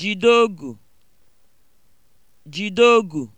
jideogu jideogu